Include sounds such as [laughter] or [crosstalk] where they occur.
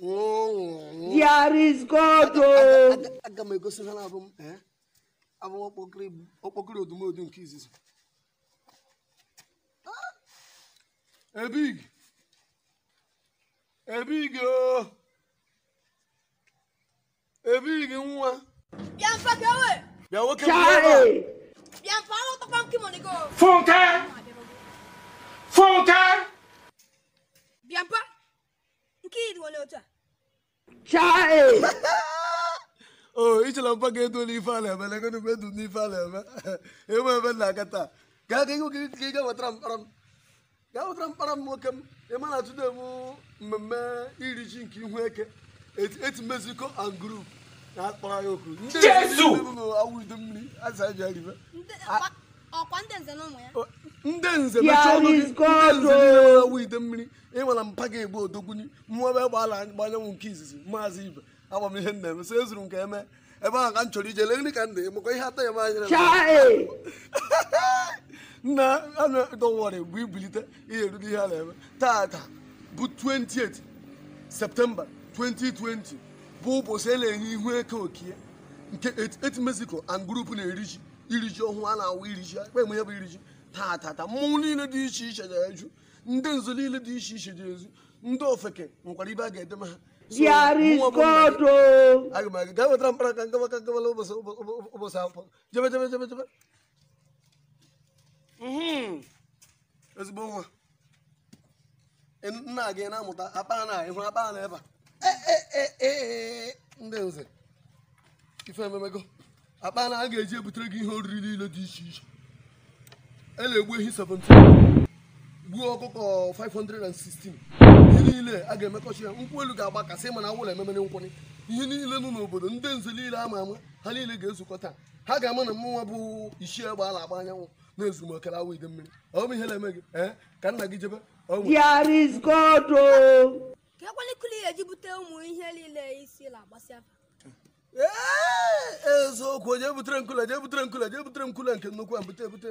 There is God. big é big é big é ọkpọkịrị odumodu nke izizi. Ebig. Ebig o. Ebig nwa. Bịa big bịa we. Bịa nwoke bịa ebe a. Bịa mfa ọrụ tọkwa nke mọnigo. Funke. Funke. Bịa mfa. Nke iri one otu a. chai [laughs] o oh, ichela mpa ka edo n'ife a na-eme n'i n'ime edu na-eme [laughs] e ebe na aka taa gaa ka ga wetara mkpara m gaa wetara mkpara m nwoke m ịma na atụde mmemme iri ji nke ihu eke eti mexico and group na-akpọrọ okwu ndị awụ udu nze ọwụ ide mmiri ịnwara e mpa ga-egbu odogbuni mmụọbe gbala gbanyanwụ nke izizi maazị ibe agba m ihe nna eme so ezuru nke eme ebe ahụ ka m chọrọ ije lee nri ka ndị maka ihe atọ ya manyere [laughs] nna anadọwarị bụ ibilite ihe eruru ihe a na-eme tata bụ 28 septemba 2020 bụ ụbọchị a e na-enye ihu eke okie nke eti mexico and group na-eri ji iri ji ọhụụ a na-awụ iri ji akpa eme bụ iriji ji ta mmọnwụ niile dị iche iche na-eju ndị nzu niile dị iche iche dị ozi ndị ofeke nwekwara ibe a ga-edema ha oh. aga m aga gaa wetara mkpara ka ngaba ka ngabala ụbọchị akwụkwọ jebe jebe jebe jebe mm-hmm. ezigbo nwa nna gị na-amụta akpa na ịhụrụ akpa na ebe a e, e, e, ndị nze ife ememego akpa na a ga-eji ebutere gị ihe oriri niile dị iche iche a na-egbu ehi 17 gbuo ọkụkọ 516 ihe niile a ga-emekọchi ya nkwụ elu ga-agbakasị mana awụla ememere nkwụnị ihe niile nọ n'obodo ndị nze niile ama ama ha niile ga ezukọ taa ha ga-ama na mụnwa bụ isi egbe ala na-agba anyanwụ na ezumokele awụ ide mmiri ọ ihe na-eme gị ka nna gị jebe there is God oh. ka ekwelikili ụmụ ihe niile isi na-agbasị afa ee eziokwu jee butere nkụle jee butere nkụle jee butere nkụle nke nnukwu a bute ebute